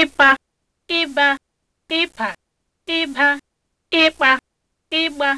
ịpa ịba ịpa ịba ịkpa